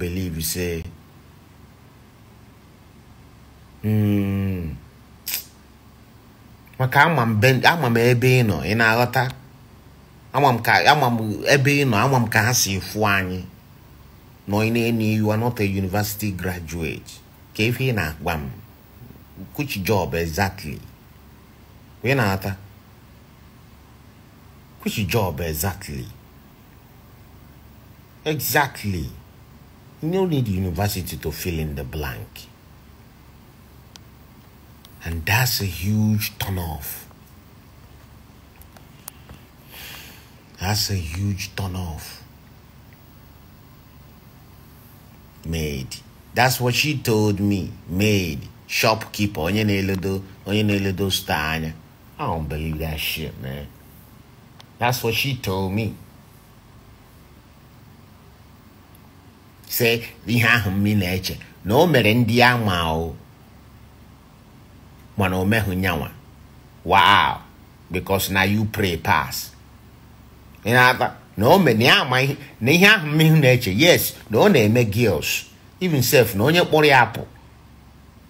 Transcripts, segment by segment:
believe say mm. maka ama m ebe ị nọ ị na-aghọta ama m ebe ị nọ ama m ka ha si fụ anyị nọ ị na enye you are not a university graduate ka ife ị na-agba m which job exactly ị na-ata which job exactly exactly no need university to fill in the blank. And that's a huge turnoff. That's a huge turnoff. Made. That's what she told me. Made. Shopkeeper. Onye your eledo onye na-eledo I don't believe that shit, man. That's what she told me. sị ihe ahụ m na-eche na o mere ndị ya ma o mana o meghị nyanwa wow because na you pray pass ị na-ata na o mere na ya ama na ihe ahụ mmehie na-eche yes na ọ na-eme girls even self na onye kpọrọ ya apụ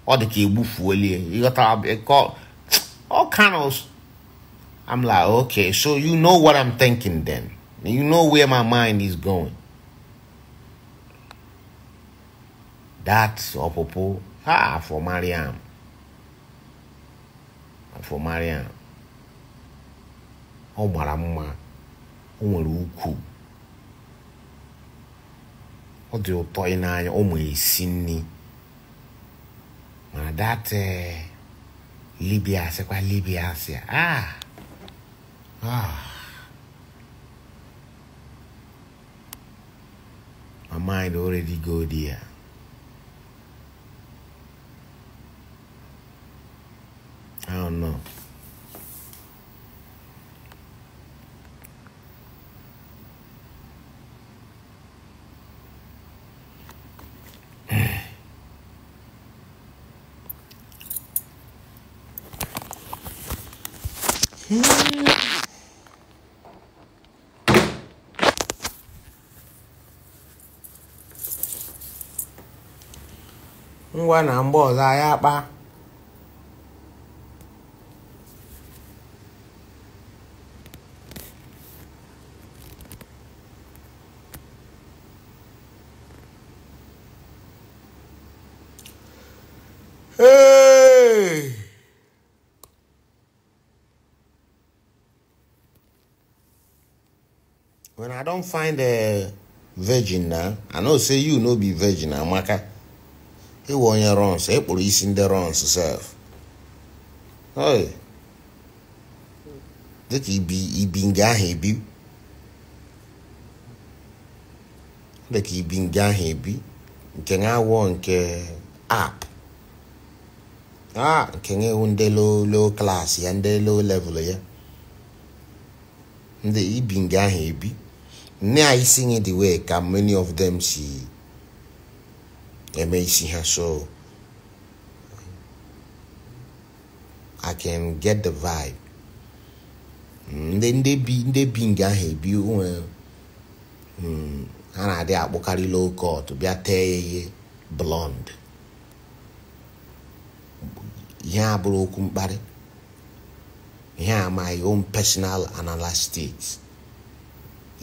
ọ dị ka egbufuolie ịghọtara all kind I'm like okay so you know what I'm thinking then you know where my mind is going that ọpụpụ ha for Mariam for Mariam ọ mara mma o nwere ukwu ọ dị ụtọ ị n'anya ọ ma esi nri mana that eh, libia sịkwa libia sị ah ah my mind already go there. ngwa na bỏ dài à ba when i don't find a virgin na i know say you no be virgin amaka ịwụ onye runs ekpụrụ isi ndị runs sef oi dịka ibi ibi nga ahụ ebi dịka ibi nga ahụ ebi nke na-awọ nke app ah nke na-ewu ndị low low class ya ndị low level ya ndị ibi nga ahụ ebi nne anyị si nye the way ka many of them si eme isi ha so I can get the vibe ndị mm, ndị bi ndị bi nga ahụ ebi nwe eh, mm, ha na-adị akpụkarị low cut bịa tee ya ihe blond ihe abụrụ okwu mkparị ihe amaghị own personal analytics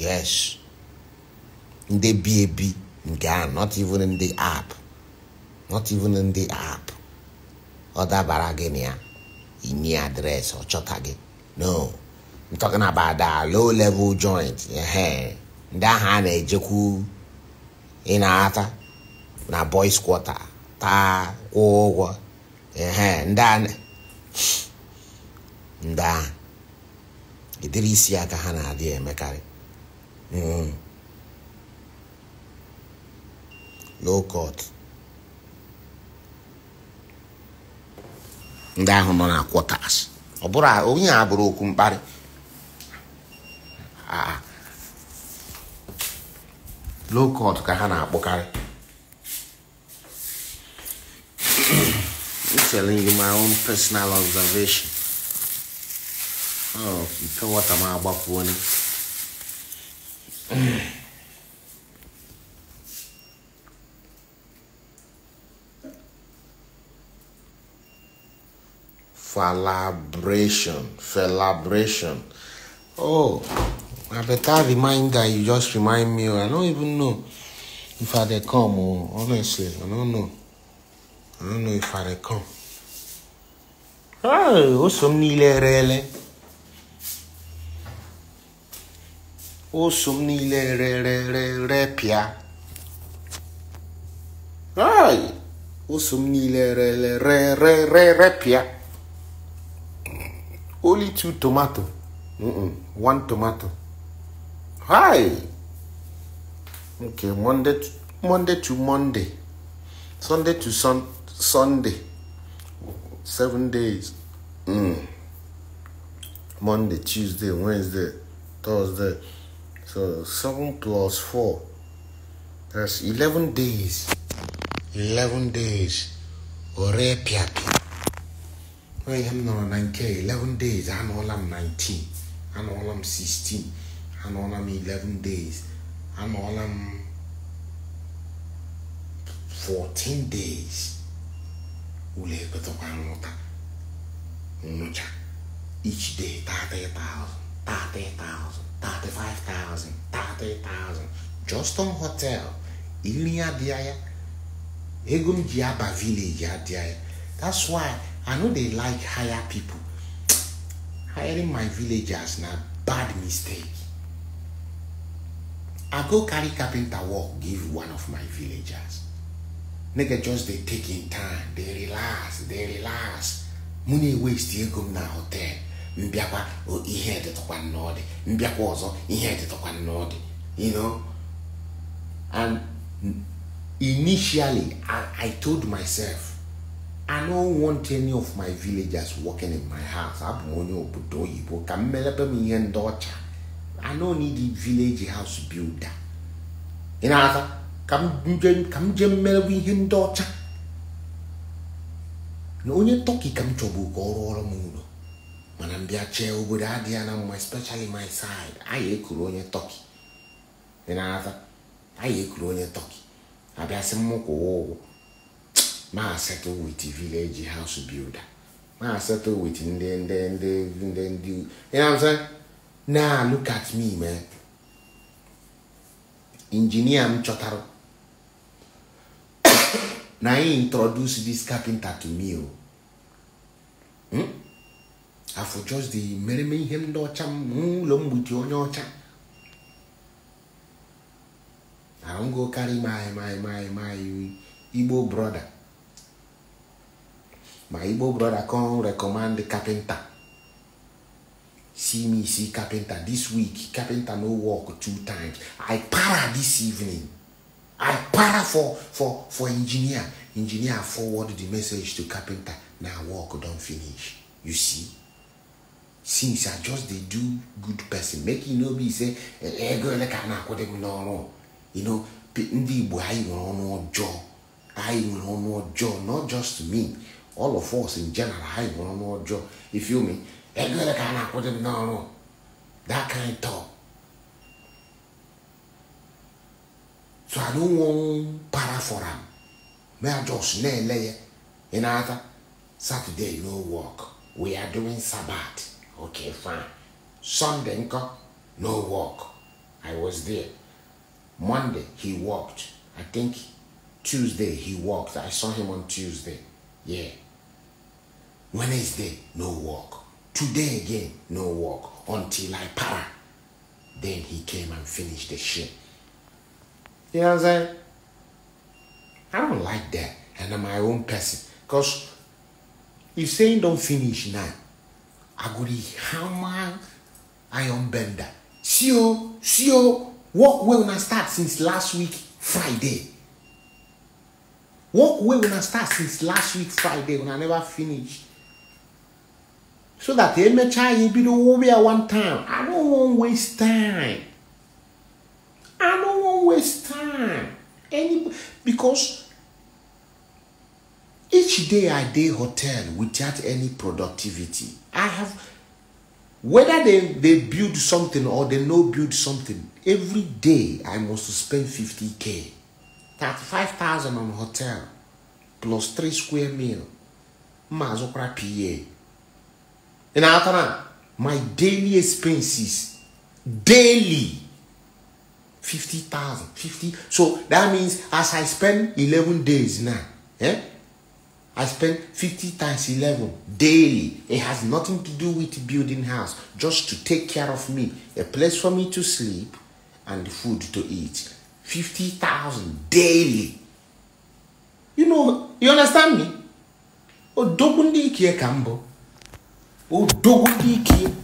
yes ndị bi ebi nke a not even in the app not even in the app ọ dabara gị na ya inye adreesị ọ chọta gị no I'm na about low level joint ehe ndị ahụ a na-ejekwu ị na-ata na boys quarter taa kwụọ ụgwọ ehe ndị a ndị ahụ ịdịrị isi aka ha na-adị emekarị Mm. Low cut ndị ahụ nọ na quarters ọ bụrụ onye a bụrụ okwu mkparị low ah, ah. cut ka ha na-akpọkarị I'm telling you my own personal observation. Oh, mpewata m agbakwuo Falabration, falabration. Oh, a better reminder you just remind me. I don't even know if I they come. Or, oh, honestly, I don't know. I don't know if I they come. Oh, oh, some nile rele. oso m niile rerererepịa oso m niile rerererepịa only two tomato Mm-mm, one tomato hi okay monday to monday to monday sunday to sun sunday seven days mm. monday tuesday wednesday thursday So 7 plus 4, that's 11 days. 11 days. Ore piapi. I'm not 9K. 11 days. I know I'm 19. I know I'm 16. I know I'm 11 days. I know I'm 14 days. Ule petokanota. Unucha. Each day, 30,000. 30,000. 35,000, 30,000 just on hotel. Ili adịa ego diaba village adịa That's why I know they like hire people. Hiring my villagers now, bad mistake. I go carry carpenter work give one of my villagers. Nigga just they taking time, They relax, They relax. Money waste ego m na hotel. mbịakwa ihe dịtụkwa dị mbịakwa ọzọ ihe dịtụkwa nnọdị you know and initially I, told myself I don't want any of my villagers working in my house. abụ m onye obodo oyibo ka m melepe m ihe ndị ọcha I no need village house builder ị na ka m jee mmelebe ihe ndị ọcha na onye tọki ka m chọbụ ka ọ ọrụ m ụlọ mana mbịa chee obodo adịghị ya na mma especially my side anyị ekuru onye tọki dị n'aza anyị ekuru onye tọki abịasị ụwa ụgwọ maa settle wit village house builder maa settle wit ndị ndị ndị ndị ndị you na look at me man injinia m chọtara na introduce this carpenter to me o. Oh. Hmm? afọ just dị mereme ihe ndị ọcha n'ụlọ mgbuchi onye ọcha ahụgo karị maị maị maị maị igbo brọda ma igbo brọda recommend rekọmand kapịnta see me see carpenter this week carpenter no work two times i para this evening i para for for for engineer engineer forward the message to carpenter na work don finish you see since i just dey do good person make e no be say ego eh, eh, ele ka na-akwụdị m you know ndị igbo anyị nwere ọnụ ọjọọ anyị nwere ọnụ ọjọọ not just me all of us in general anyị nwere ọnụ ọjọọ if you me ego eh, ele ka na-akwụdị m n'ọrụ that kind talk so i don wan para for am may i just na-ele ya ị na-ata saturday no work we are doing sabbath Okay, fine. Sunday, no work. I was there. Monday, he walked. I think Tuesday, he walked. I saw him on Tuesday. Yeah. Wednesday, no work. Today again, no work until I para. Then he came and finished the shit. You know what I'm saying? I don't like that. And I'm my own person. Because if saying don't finish now, agodi hammer iron bender see o see o work wey una start since last week friday work wey una start since last week friday una never finish so that the emechaa you bido worry at one time i no wan waste time i no wan waste time any because Each day I day hotel without any productivity. I have whether they, they build something or they no build something, every day I must spend 50k. 35,000 on hotel plus 3 square meal. Mazokwara PA. And atana my daily expenses, daily 50,000, 50. So that means as I spend 11 days now, eh? I spend 50 times 11 daily. It has nothing to do with building house, just to take care of me, a place for me to sleep and food to eat. 50,000 daily. You know, you understand me? Odogun dị ike ka mbụ. Odogun dị